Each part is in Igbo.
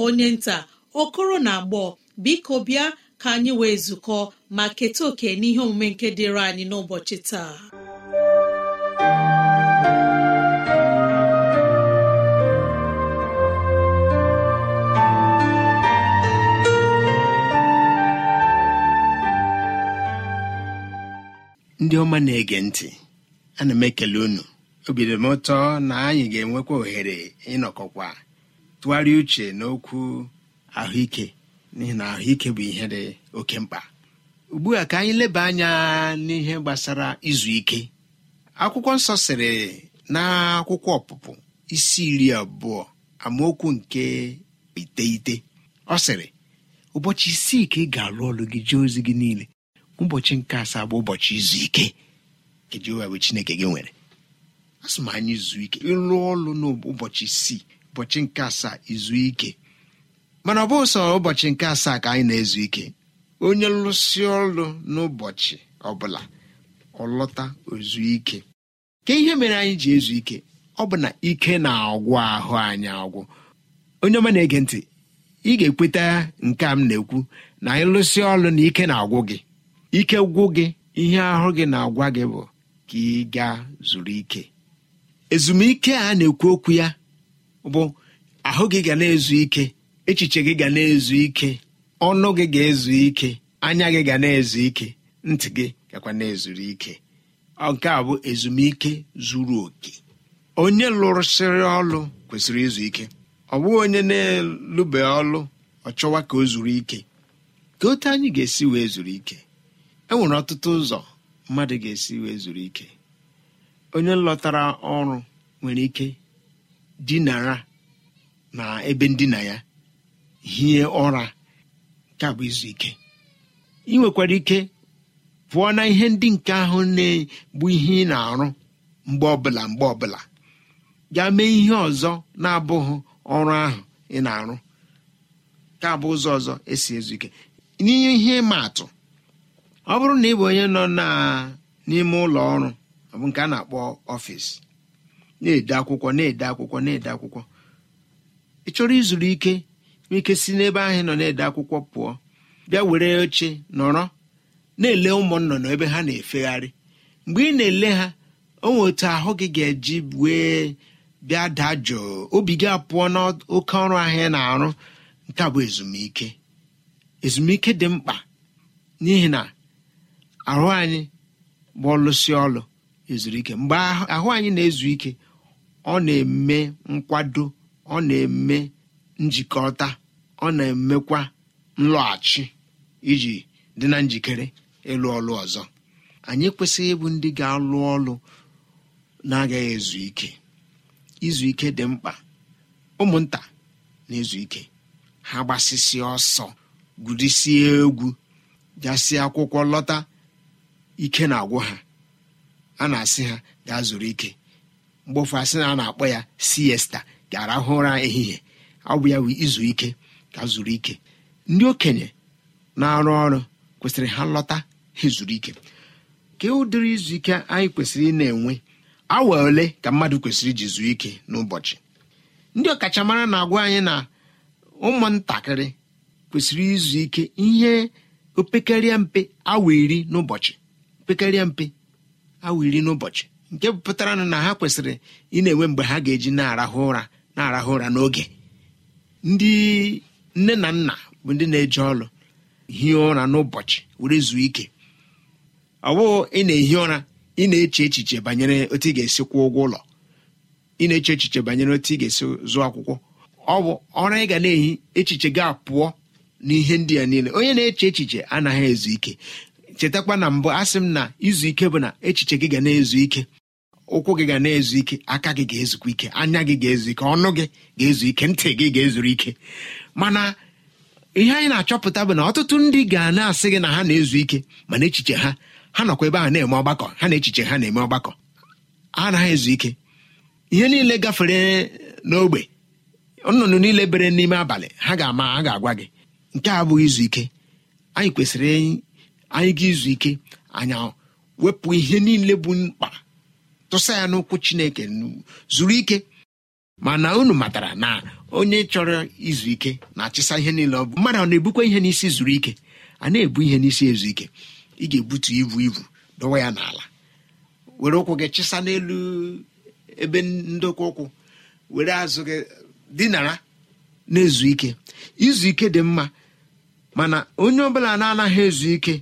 onye nta okoro na agbọ biko bịa ka anyị wee zukọ ma keta oke n'ihe omume nke dịịrị anyị n'ụbọchị taa ndị ọma na-ege ntị ana m ekele unu obidom ụtọ na anyị ga-enwekwa ohere ịnọkọkwa tụgharịa uche n'okwu ahụike n'ihi na ahụike bụ ihe dị oke mkpa ugbu a ka anyị leba anya n'ihe gbasara izu ike akwụkwọ nsọ sịrị na akwụkwọ ọpụpụ isi iri abụọ amaokwu nke iteghete ọ sịrị ụbọchị isii ka ị ga-alụ ọlụ gị jee ozi gị niile ụbọchị nke asaa bụ ụbọchị izu ike Chineke gị nwere asị m anyị zuo ike ịlụ ọlụ n'ụbọchị isii ụbọchị nke asaa izu ike mana ọ bụghị sọ ụbọchị nke asaa ka anyị na-ezu ike onye lụsị ọrụ n'ụbọchị ọbụla ọlọta ozu ike ka ihe mere anyị ji ezu ike ọ bụ na ike na-agwụ ahụ anyị agwụ onye ọma na-ege ntị ị ga-ekweta nke a m na-ekwu na anyị lụsị ọrụ na ike na-agwụ gị ike gwụ gị ihe ahụ gị na-agwa gị bụ ka ị gaa zuru ike ezumike a na-ekwu okwu ya bụ ahụ gị ga na-ezu ike echiche gị ga na-ezu ike ọnụ gị ga-ezu ike anya gị ga na-ezu ike ntị gị gakwa na-ezuru ike nke a bụ ezumike zuru oke onye lụrụsịrị ọlụ kwesịrị izu ike ọ bụghị onye na-elube ọlụ ọ chọwa ka o zuru ike ka otu anyị ga-esi wee zuru ike e nwere ọtụtụ ụzọ mmadụ ga-esi wee zuru ike onye lọtara ọrụ nwere ike dinara na ebe ndina ya hie ụra nke izu ike ị nwekwara ike pụọ na ihe ndị nke ahụ na-egbu ihe ị na-arụ mgbe ọbụla mgbe ọbụla gaa mee ihe ọzọ na-abụghị ọrụ ahụ ị na-arụ ka bụ ụzọ ọzọ esi ezu ike n'ihe ihe ịma atụ ọ bụrụ na ị bụ onye nọ n'ime ụlọ ọrụ ọ nke a na-akpọ ọfịs na-ede akwụkwọ na-ede akwụkwọ na-ede akwụkwọ ị chọrọ izuru ike nwee ike si n'ebe ahụ nọ na-ede akwụkwọ pụọ bịa were oche nọrọ na-ele ụmụ nnọnọ ebe ha na-efegharị mgbe ị na-ele ha onwe otu ahụ gị ga-eji wee bịa daa jụụ obi gị apụọ n'oke ọrụ ahịa ị na-arụ nke bụ ezumike ezumike dị mkpa n'ihi na ahụ anyị bụ ọlụsị ọlụ ezuru mgbe ahụ anyị na-ezu ike ọ na-eme nkwado ọ na-eme njikọta ọ na-emekwa nlọghachi iji dị na njikere ịlụ ọlụ ọzọ anyị kwesịghị ịbụ ndị ga-alụ ọlụ na-agaghị ezu ike izu ike dị mkpa ụmụnta na-ezu ike ha gbasịsịa ọsọ gụdisie egwu gasị akwụkwọ lọta ike na-agwụ ha a na-asị ha gaa zuru ike mgbe ụfụ asị na a na-akpọ ya siesta ga-arahụ ụra ehihie ọ bụ ya izu ike ka zuru ike ndị okenye na-arụ ọrụ kwesịrị ha lọta ha zuru ike ka ụdịrị izu ike anyị kwesịrị ị na-enwe awa ole ka mmadụ kwesịrị iji zuo ike n'ụbọchị ndị ọkachamara na-agwa anyị na ụmụntakịrị kwesịrị izu ike ihe opekarịa mpe awa iri n'ụbọchị nke pụtara na ha kwesịrị ị na-enwe mgbe ha ga-eji na-arahụ ụra na-arahụ ụra n'oge ndị nne na nna bụ ndị na eji ọrụ hie ụra n'ụbọchị were zuo ike ọ bụghị ị na-ehi ụra ị na-eche echiche banyere otu ị ga-esi kwụọ ụgwọ ụlọ ị na-eche echiche banyere otu ị ga-esi zụọ akwụkwọ ọ bụ ọra ị ga na-ehi echiche ga apụọ n'ihe ndị a niile onye na-eche echiche anaghị ezu ike chetakwa na mbụ sị m na izu ike bụ na echiche gị ga na-ezu ike ụkwụ gị ga na-ezu ike aka gị ga-ezukwa ike anya gị ga-ezu ike ọnụ gị ga-ezu ike ntị gị ga-ezuru ike mana ihe anyị na-achọpụta bụ na ọtụtụ ndị ga na-asị gị na ha na-ezu ike mana echiche ha ha nọkwa ebe ha na-eme ọgbakọ ha na echiche ha na-eme ọgbakọ ha anaghị ezu ike ihe niile gafere n'ogbe nnụnụ niile bere n'ime abalị ha ga-ama ha ga-agwa gị nke a abụghị izu ike anyị kwesịrị anyị ga izu ike anya wepụ ihe niile bụ mkpa tụsa ya n'ụkwụ chineke zuru ike mana unu matara na onye chọrọ izu ike na-achịsa ihe niile ọ bụ mmadụ ọ na-ebukwa ihe n'isi zuru ike a na-ebu ihe n'isi ezu ike ị ga-ebutu ibu ibu dọwa ya n'ala were ụkwụ gị chịsa n'elu ebe ndokwa ụkwụ were azụ gị dinara na-ezu ike izu ike dị mma mana onye ọbụla na-anaghị ezu ike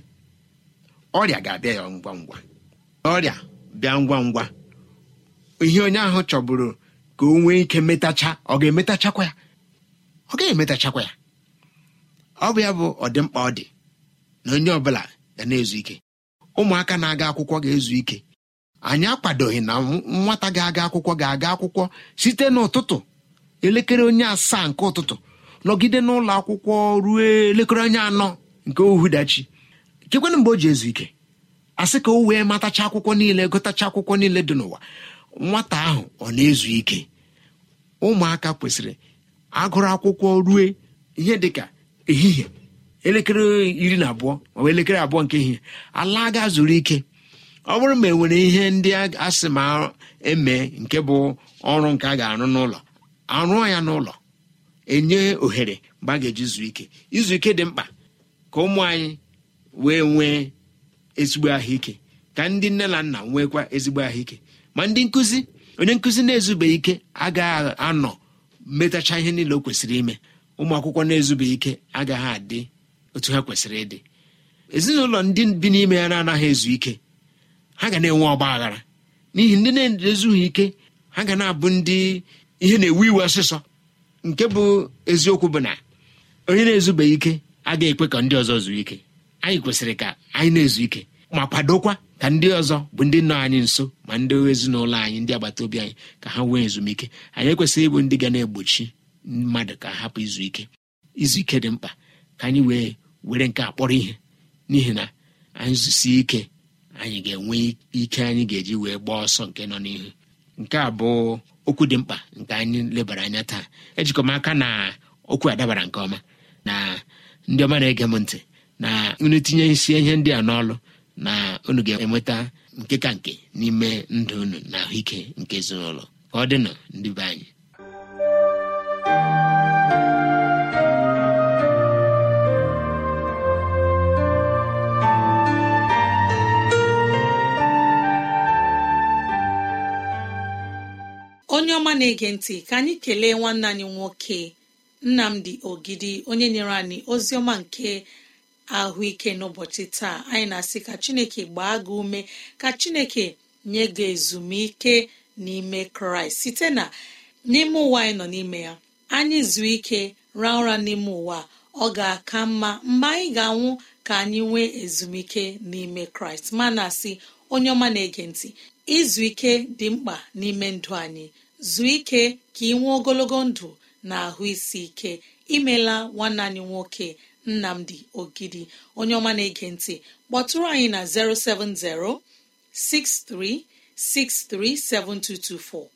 ọrịa ga-abịa ya ngwa ngwa ọrịa bịa ngwa ngwa ihe onye ahụ chọburu ka o nwee ike metacha ọ ga-emetachakwa ya ọ gaghị emetachakwa ya ọ bụ ya bụ ọdịmkpa ọ dị na onye ọbụla ga na-ezu ike ụmụaka na-aga akwụkwọ ga-ezu ike anyị akwadoghị na nwata ga-aga akwụkwọ ga-aga akwụkwọ site n'ụtụtụ elekere onye asaa nke ụtụtụ nọgide n'ụlọ akwụkwọ ruo elekere onye anọ nke dachi chekwana mgbe o ji ezu ike asị ka o wee matacha akwụkwọ niile gotacha akwụkwọ niile dị n'ụwa nwata ahụ ọ na-ezu ike ụmụaka kwesịrị agụrụ akwụkwọ rue ihe dịka ehihie elekere iri na abụọ ma elekere abụọ nke ehihie ala ga zuru ike ọ bụrụ ma e nwere ihe ndị asị ma eme nke bụ ọrụ nke a ga-arụ n'ụlọ arụọ ya n'ụlọ enye ohere mgbe a ga-eji zuo ike izu ike dị mkpa ka ụmụ anyị wee nwee ezigbo ahụike ka ndị nne na nna nweekwa ezigbo ahụike ma ndị nkụzi onye nkụzi na-ezube ike agaghị anọ metacha ihe niile o kwesịrị ime ụmụ akwụkwọ na-ezube ike agaghị adị otu ha kwesịrị ịdị ezinụlọ ndị bi n'ime ya na-anaghị ezu ike ha ga na-enwe ọgba aghara n'ihi ndị na-ezughị ike ha ga na-abụ ndị ihe na-ewu iwe ọsịsọ nke bụ eziokwu bụ na onye na-ezube ike agaghị ekwe ka ndị ọzọ zuo ike anyị kwesịrị ka anyị na-ezu ike ma kwadokwa ka ndị ọzọ bụ ndị nọ anyị nso ma ndị ezinụlọ anyị ndị agbata obi anyị ka ha nwee ezumike anyị ekwesịghị ịbụ ndị ga na-egbochi mmadụ ka hapụ izu ike izu ike dị mkpa ka anyị wee were nke akpọrọ ihe n'ihi na anyị ike anyị ga-enwe ike anyị ga-eji wee gbaa ọsọ nke nọ n'ihu nke a bụ okwu dị mkpa nke anyị lebara anya taa ejikọm aka na okwu adabara nke ọma na ndị ọma na-ege m ntị na nri tinye isi ihe ndị a n'ọlụ na unu ga-enweta nke ka nke n'ime ndụ unu na ahụike nke ezinụlọ ka ọ dịnụ ndị be anyị onye ọma na-ege ntị ka anyị kelee nwanne anyị nwoke nnamdi ogidi onye nyere anyị ozi ọma nke ahụike n'ụbọchị taa anyị na-asị ka chineke gbaa gị ume ka chineke nye gị ezumike n'ime kraịst site na n'ime ụwa anyị nọ n'ime ya anyị zuo ike raa ụra n'ime ụwa ọ ga-aka mma mgbe anyị ga-anwụ ka anyị nwee ezumike n'ime kraịst ma na-asị onye ọma na-ege ntị izu ike dị mkpa n'ime ndụ anyị zuo ike ka ị nwee ogologo ndụ na ahụ isi ike imela nwanne anyị nwoke nnamdi ogidi onye ọma na-ege ntị kpọtụrụ anyị na 070 07063637224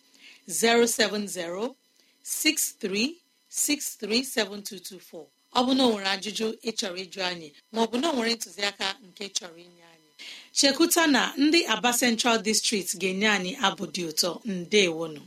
07063637224 ọ bụ na ọ nwere ajụjụ ịchọrọ ịjụ anyị ma na ọ nwere ntụziaka nke chọrọ inye anyị chekuta na ndị aba central district ga-enye anyị abụ dị ụtọ ndewonu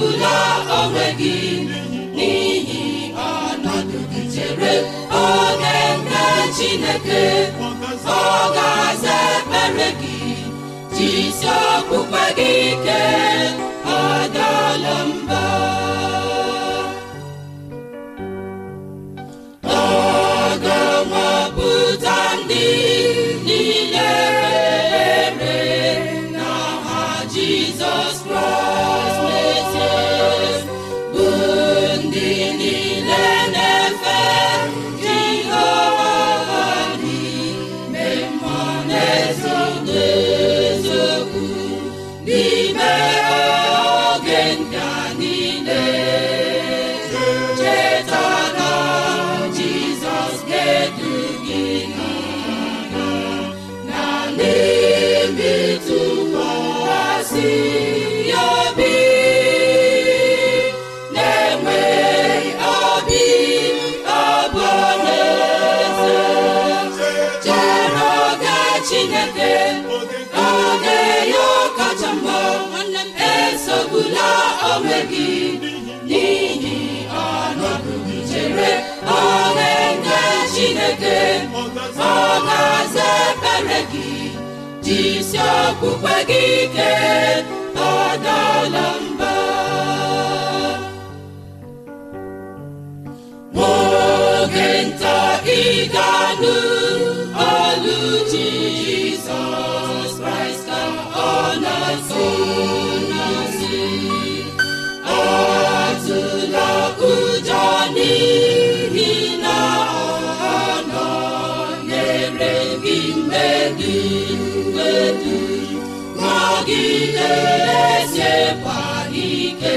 bụla onwe gị n'ihi ọnọdụ gị chere oge nke Chineke ọ ga-aza ekpere gị jisi okpukpe gị ike ọ ga-aza ebere gị jisi okpukpe gị ike gị na-ezekwa ike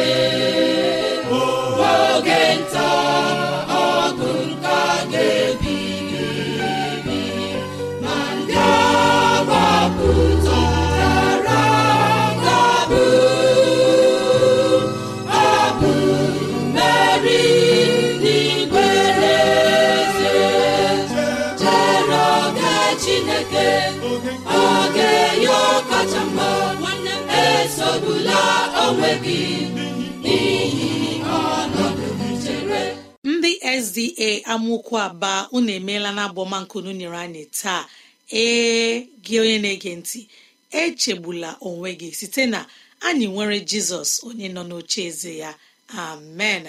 ndị sda amaokwu aba unu emeela na abọmankunu nyere anyị taa ee gị onye na-ege ntị echegbula onwe gị site na anyị nwere jizọs onye nọ n'oche eze ya amen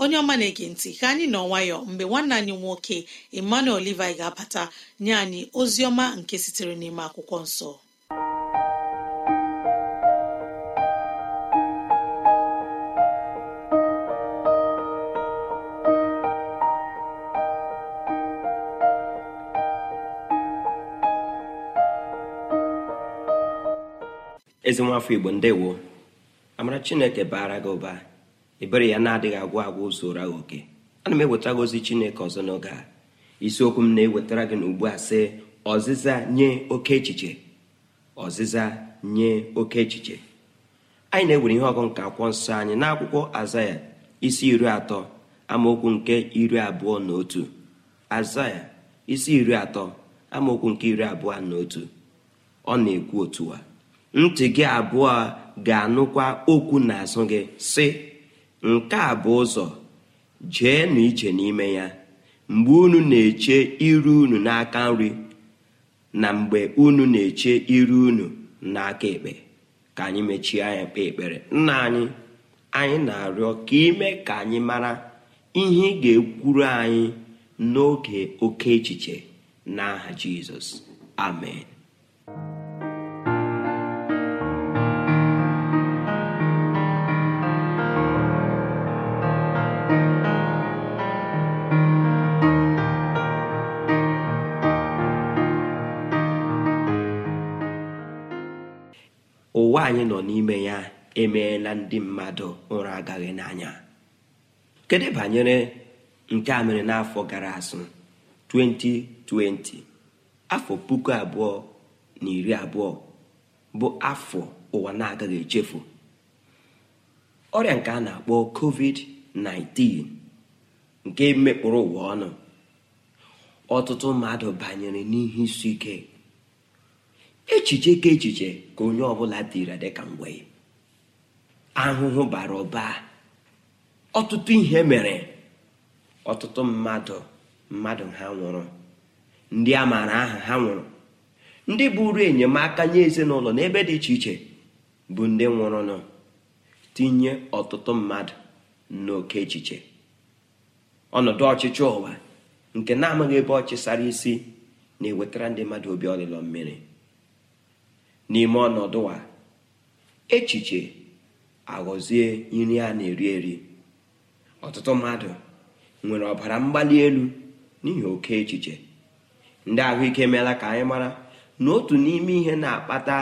onye ọma na-ege ntị ka anyị nọ nwayọ mgbe nwanne anyị nwoke emmanuel olivi ga-abata nye anyị ozi ọma nke sitere n'ime akwụkwọ nsọ ezi nwafọ igbo ndewo amara chineke baara gị ụba ebere ya na-adịghị agwụ agwụ zụra gị oke ana m eweta gị ozi chineke ọzọ n'oge a isiokwu m na-ewetara gị n'ugbu a sị ọzịza nye oke echiche ọzịza nye oke echiche anyị na-ewere ihe ọgụ nke akwụkwọ nsọ anyị n'akwụkwọ azaya isi iri atọ amaokwu nke iri abụọ na otu azaya isi iri atọ amaokwu nke iri abụọ na otu ọ na-ekwu otu a ntị gị abụọ ga-anụkwa okwu n'azụ gị si nke a bụ ụzọ jee na ije n'ime ya mgbe unu na-eche iru unu n'aka nri na mgbe unu na-eche iru unu n'aka ekpe ka anyị mechie anya kpee ekpere nna anyị anyị na-arịọ ka ime ka anyị mara ihe ị ga-ekwuru anyị n'oge oke echiche n'aha Jizọs amen emeela ndị mmadụ ụra agaghị n'anya kedu banyere nke a n'afọ gara azụ 2020 afọ puku abụọ na iri abụọ bụ afọ ụwa na-agaghị echefu ọrịa nke a na-akpọ covid-19 nke mekpụrụ ụwa ọnụ ọtụtụ mmadụ banyere n'ihe isi ike echiche ka echiche ka onye ọbụla dịra dịka mgbe ahụhụ bara ụba ọtụtụ ihe mere ọtụtụ mmadụ mmadụ ha nwụrụ ndị a maara aha ha nwụrụ ndị bụrụ enyemaka nye ezinụlọ n'ebe dị iche iche bụ ndị nwụrụnụ tinye ọtụtụ mmadụ n'oke echiche ọnọdụ ọchịchị ụwa nke na-amaghị ebe ọchịsara isi na-ewetara ndị mmadụ obi ọlịlọ mmiri n'ime ọnọdụ a echiche aghọzie nri a na-eri eri ọtụtụ mmadụ nwere ọbara mgbali elu n'ihi oke echiche ndị ahụike emeela ka anyị mara na otu n'ime ihe na-akpata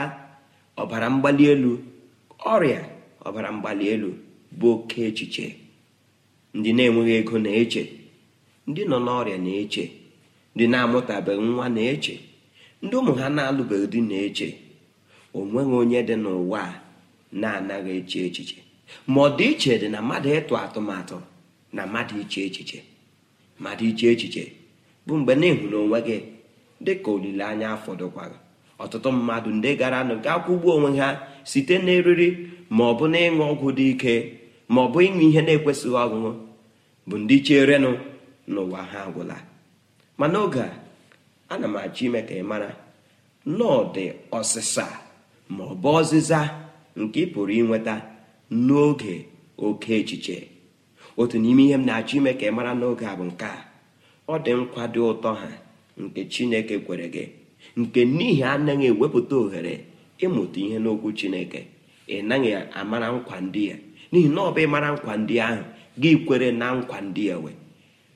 ọbara mgbali elu ọrịa ọbara mgbali elu bụ oke echiche ndị na-enweghị ego na-eche ndị nọ n'ọrịa na-eche ndị na-amụtabeghị nwa na-eche ndị ụmụ ha na-alụbeghị dị na-eche onweghị onye dị n'ụwa a na-anaghị eche echiche ma ọ dị iche dị na mmadụ ịtụ atụmatụ na mmadụ iche echiche mmadụ iche echiche bụ mgbe na ịhụrụ onwe gị dị ka olileanya afọdụkwaghị ọtụtụ mmadụ ndị gara nụ ga-akwụgbu onwe ha site n'eriri ma ọ bụ na ịṅụ ọgwụ dị ike ma ọ bụ ịṅụ ihe na-ekwesịghị ọṅụṅụ bụ ndị cherenụ n'ụwa ha agwụla ma n'oge a ana m achọ ime ka ị mara na dị ọsịsa ma ọ bụ ọzịza nke ị pụrụ inweta n'oge oke echiche otu n'ime ihe m na-achọ ime ka ị mara n'oge a bụ nke a ọ dị dị ụtọ ha nke Chineke kwere gị nke n'ihi anaghị ewepụta ohere ịmụta ihe n'okwu Chineke ị naghị amara nkwa ndị ya n'ihi na ọ bụ ịmara nkwa ndị ahụ gị kwere na nkwa ndị ewe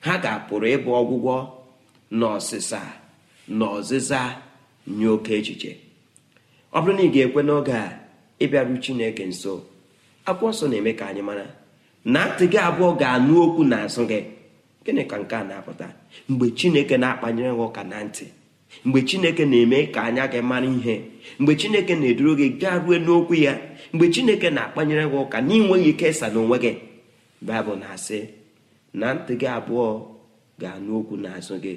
ha ga-apụrụ ịbụ ọgwụgwọ n'ọsịsa ọsịsa na ọzịza nye oke echiche ọ bụrụ na ị ga-ekwe n'oge a ịbịaru chineke nso akwụkwọ nsọ na-eme ka anyị mara na ntị gị abụọ ga-anụ okwu n'azụ gị gịnị ka nke a na-apụta mgbe chineke na-akpanyere gị ụka na ntị mgbe chineke na-eme ka anya gị mara ihe mgbe chineke na-eduru gị gaa ruo n'okwu ya mgbe chineke na-akpanyere gị ụka n'inweghị ikesa n'onwe gị baịbụl na-asị na ntị gị abụọ ga-anụ okwu n'azụ gị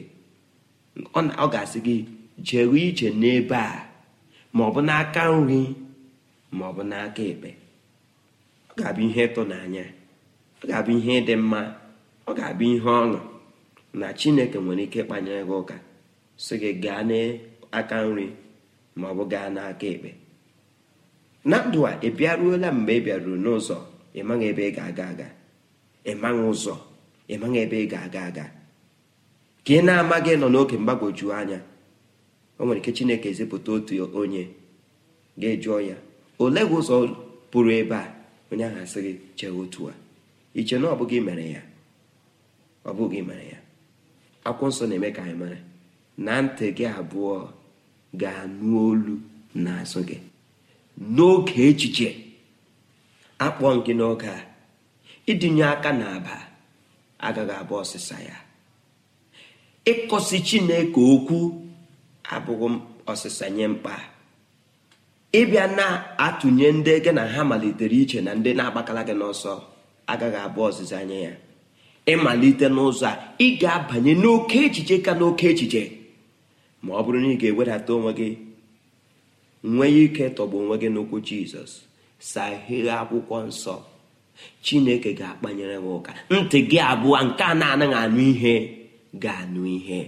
ọ ga-asị gị jewe ije n'ebe a ma ọ bụ n'aka nri ma ọ bụ n'aka ekpe ọ ga-abụ ihe ịtụnanya ọ ga-abụ ihe dị mma ọ ga-abụ ihe ọṅụ na chineke nwere ike ịkpanye gị ụka sị gị gaa n'aka nri ma ọ bụ gaa n'aka ekpe na ndụ a ị bịaruola mgbe ị bịaruru n'ụzọ ịmaghị ebe ị ga-aga aga ịmaghị ụzọ ịmaghị ebe ị ga-aga aga ka ị na-amaghị nọ n'oge mgbagwoju anya o nwere ike chineke ezipụta otu onye ga-ejụọ ya ole gị ụzọ pụrụ ebe a onye ahụ asị gị chee otu a iche na ọ bụghị mere ya ọ bụghị mere ya akwụkwọ nsọ na-eme ka anyị mara na ntị gị abụọ ga-anụ olu n'azụ gị n'oge echiche akpọ gị n'oge a ịdịnye aka n'aba agaghị abụ ọsịsa ya ịkọsi Chineke okwu abụghị ọsịsa nye mkpa ịbịa na-atụnye ndị gị na ha malitere iche na ndị na-agbakala gị n'ọsọ agaghị abụ ọzịza anya ya ịmalite n'ụzọ a ị ga-abanye n'oke echiche ka n'oke echiche ma ọ bụrụ na ị ga-ewedata onwe gị nwee ike tọgbu onwe gị n'okwu jizọs sahie akwụkwọ nsọ chineke ga-akpanyere m ụka ntị gị abụọ nke a na-anaghị anụ ihe ga-anụ ihe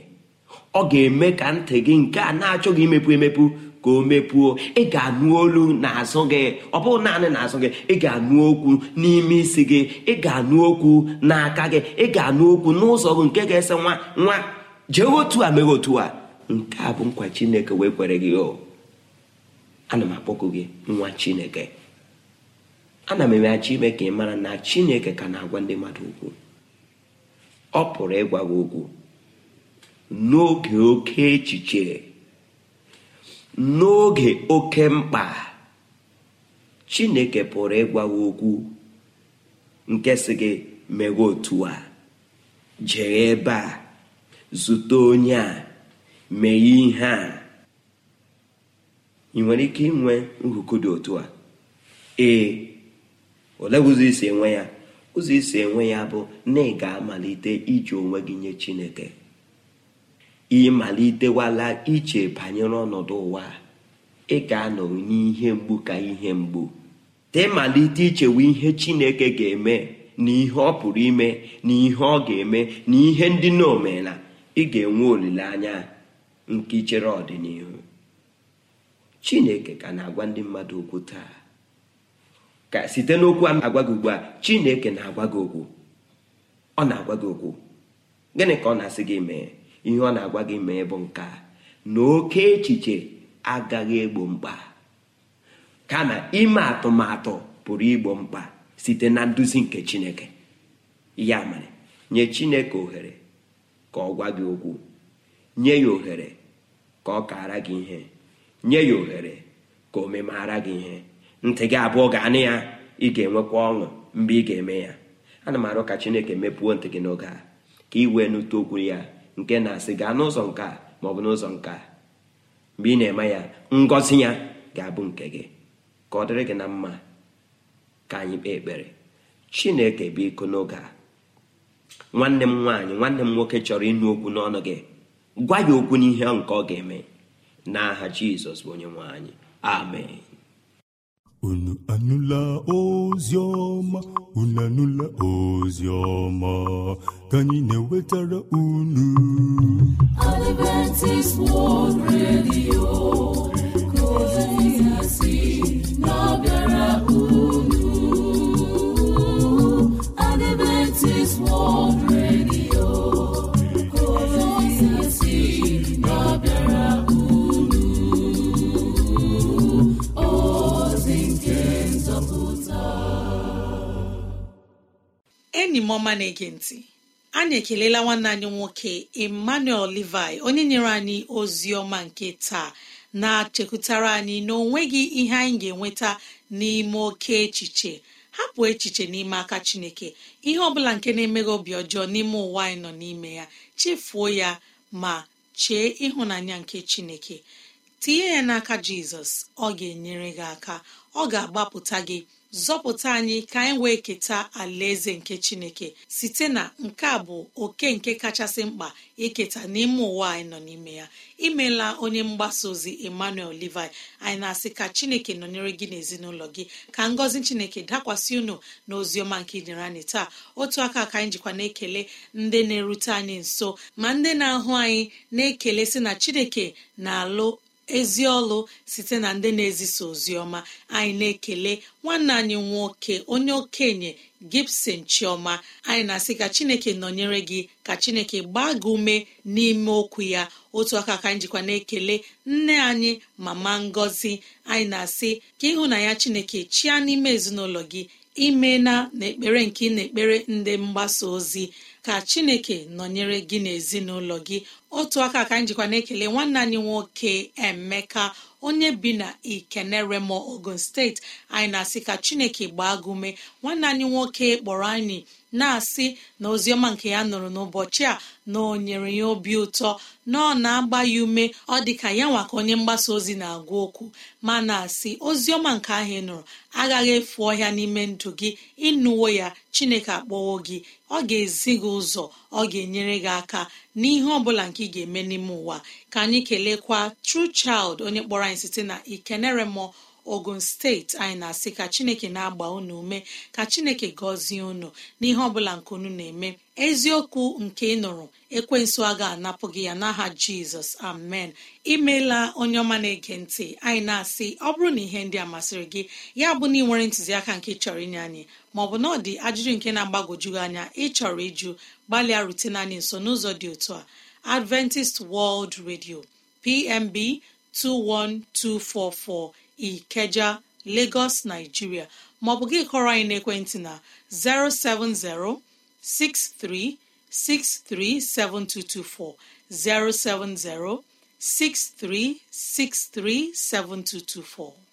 ọ ga-eme ka ntị gị nke a na-achọghị imepu emepu ka o mepuo ị ga-anụ olu n'azụ gị ọ bụghị naanị n'azụ gị ị ga-anụ okwu n'ime isi gị ị ga-anụ okwu n'aka gị ị ga-anụ okwu n'ụzọ gị nke ga-ese nwa nwa jee otu a meghị otu a nke a bụ nkwa chineke wee kwere gị o oh, ana m akpọkụ gị nwa chineke ana m emeghachi ime ka ị mara na chineke ka na-agwa ndị mmadụ okwu ọ pụrụ ịgwa gị okwu n'oge oke echiche n'oge oke mkpa chineke pụrụ ịgwawa okwu nke si gị meghe otu a jee ebe a zute onye a mee ihe a ị nwere ike inwe nhuku dị otu a ee ole ụzọ isi enwe ya ụzọ isi enwe ya bụ na ị ga-amalite iji onwe gị nye chineke ịmalitewala iche banyere ọnọdụ ụwa ị ga-anọ n'ihe mgbu ka ihe mgbu temalite ichewe ihe chineke ga-eme na ihe ọ pụrụ ime na ihe ọ ga-eme na ihe ndị na omena ị ga-enwe olileanya nke ichere ọdịnihu chineke ka na-agwa ndị mmadụ okwu taa ka site n'okwu agwa gị ugbu a chineke na-agwa gị okwu ọ na-agwa gị okwu gịnị ka ọ na-asị gị mee ihe ọ na-agwa gị ma bụ nka na oke echiche agaghị egbo mkpa ka na ime atụmatụ pụrụ igbo mkpa site na nduzi nke chineke ya mere nye chineke ohere ka ọ gwa gị okwu nye ya ohere ka ọ kaara gị ihe nye ya ohere ka o memara gị ihe ntị gị abụọ ga-anị ya ị ga-enwekwa ọṅụ mgbe ị ga-eme ya ana m arụ ka chineke mepụọ ntị gị n'oge a ka ị wee nụta okwu ya nke na-asị gaa n'ụzọ nke a ma ọ bụ n'ụzọ nke a mgbe ị na-eme ya ngọzi ya ga-abụ nke gị ka ọ dịrị gị na mma ka anyị kpee ekpere chineke biko n'oge a nwanne m nwaanyị nwanne m nwoke chọrọ ịnụ okwu n'ọnụ gị gwa ya okwu n'ihe nke ọ ga-eme n'aha jizọs bụ onye anyị amen unu anụla ozi ọma unu anụla ozi ọma ka anyị na-ewetara unu Adventist World ọma na-ege ntị anyị ekelela nwanne anyị nwoke emmanuel levi onye nyere anyị ozi ọma nke taa na-achekwutara anyị na onweghị ihe anyị ga-enweta n'ime oke echiche hapụ echiche n'ime aka chineke ihe ọbụla nke na emeghị obi ọjọọ n'ime ụwa anyị nọ n'ime ya chefuo ya ma chee ịhụnanya nke chineke tinye ya n'aka jizọs ọ ga-enyere gị aka ọ ga-agbapụta gị zọpụta anyị ka anyị wee keta alaeze nke chineke site na nke a bụ oke nke kachasị mkpa iketa n'ime ụwa anyị nọ n'ime ya imela onye mgbasa ozi emmanuel levi anyị na-asị ka chineke nọnyere gị n'ezinụlọ gị ka ngọzi chineke dakwasị unu na oziọma nke idere anyị taa otu aka ka anyị jikwa na-ekele ndị na-erute anyị nso ma ndị na-ahụ anyị na-ekele sị na chineke na-alụ ezi ọlụ site na ndị na-ezisa ozi ọma anyị na-ekele nwanne anyị nwoke onye okenye gibson chioma anyị na-asị ka chineke nọnyere gị ka chineke gbaa gị ume n'ime okwu ya otu aka ka njikwa na-ekele nne anyị mama Ngozi. anyị na-asị ka ịhụnanya chineke chia n'ime ezinụlọ gị ime na n'ekpere nke ị na-ekpere ndị mgbasa ozi ka chineke nọnyere gị n'ezinụlọ gị otu aka ka anyị jikwa na-ekele nwanne anyị nwoke emeka onye bi na ikeneremo ogun steeti anyị na-asị ka chineke gbaa gị nwanne anyị nwoke kpọrọ anyị na-asị na oziọma nke ya nụrụ n'ụbọchị a na o nyere ya obi ụtọ na ọ na-agba ya ume ọ dị ka ya nwa ka onye mgbasa ozi na-agwa okwu ma na-asị oziọma nke ahụ ị nụrụ agaghị efu ọhịa n'ime ndụ gị ịnụwo ya chineke akpọwo gị ọ ga-ezi gị ụzọ ọ ga-enyere gị aka n'ihe ọ bụla nke ị ga-eme n'ime ụwa ka anyị kelekwa True Child onye kpọrọ anyị site na mmụọ. ogun steeti anyị na-asị ka chineke na-agba unu ume ka chineke gọzie unu n'ihe ọbụla nke unu na-eme eziokwu nke ị nụrụ ekwensu aga ga-anapụ gị ya n'aha jizọs amen imeela onye ọma na-ege ntị anyị na-asị ọ bụrụ na ihe ndị a masịrị gị ya bụ na ị nwere ntụziaka nke chọrọ inye anyị maọbụ na ọ dị ajụjụ nke na-agbagojugị anya ịchọrọ ịjụ gbalịa rutena anyị nso n'ụzọ dị otu a adventist world radio pmb 21244 Ikeja Lagos Nigeria maọbụ gị kọrọ anyị n'ekwentị na 070 6363 7224 070 6363 7224